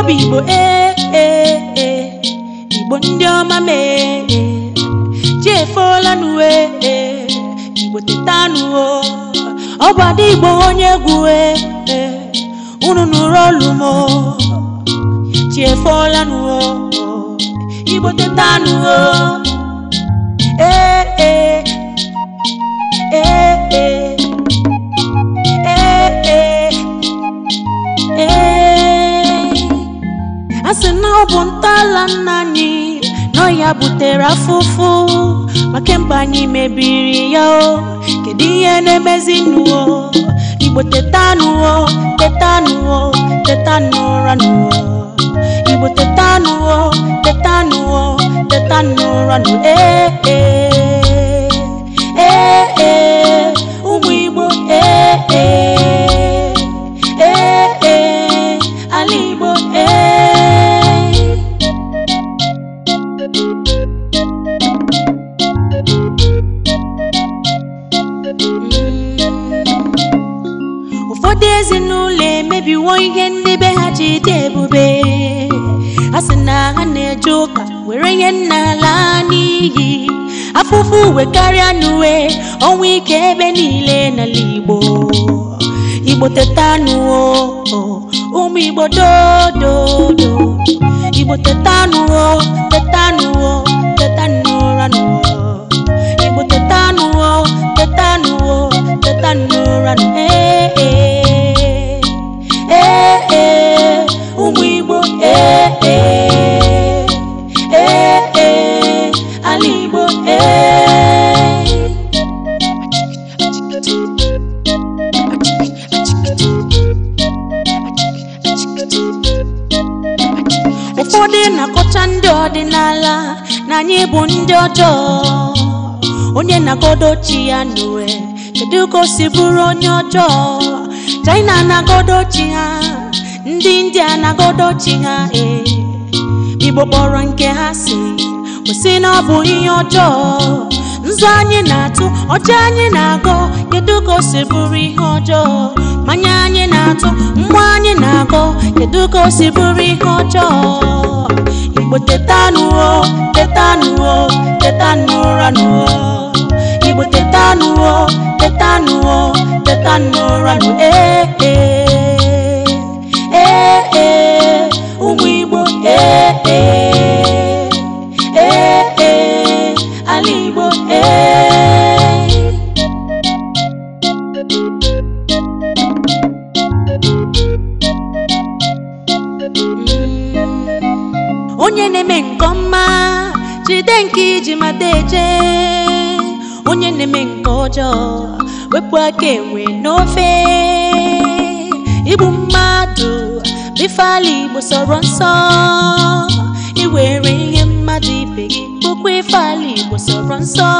ọ bụ igbo ee eh, ee eh, eh. igbo ndị ọma mee chiefuola n'uwe igbo teta n'uwo oh. ọ bụ ada igbo onye egwu ee unu nụrụ olu m chiefuola oh. n'uwo oh. igbo teta n'uwo ee ee ọ bụ ntọala nna anyị nọ ya butere afụfụ maka mba anyị mebiri ya o kedu ihe na-emezi n'uwo igbo teta n'uwo teta n'uwo teta igbo teta n'uwo teta n'uwo teta n'ụra n'uwo ndị ezinụlọ emebiwo ihe ndị be ha ji dị ebube a sị na ha na-eje ụka were ihe nna laa n'iyi afụfụ uwe karịa n'uwe ọnwa ike ebe niile n'ala Igbo Igbo teta anụwo ụmụ Igbo dododo Igbo teta anụwo teta anụwo ụfọdụ na-akọcha ndị ọdịnala na anyị bụ ndị ọjọọ onye na-agodo chi ya n'uwe kedu ka si bụrụ onye ọjọọ China na-agodo chi ha ndị India na-agodo chi ha ee Igbo kpọrọ nke ha si kwụsị na ọ bụ ihe ọjọọ nzu anyị na-atụ ọcha anyị na-agọ kedu ka o si bụrụ ihe ọjọọ manya anyị na-atụ mgbe anyị na-agọ kedu ka o si bụrụ ihe ọjọọ igbo tetanụo tetanụo tetanụra nụo igbo tetanụo tetanụo tetanụra nụ ee eh, eh. na-eme nke ọma jide nke iji mata eje onye na-eme nke ọjọọ wepụ aka enwe n'ofe igbu mmadụ bifeala igbo sọrọ nsọ iwere ihe mmadụ ibe gị bụkwa ifeala igbo sọrọ nsọ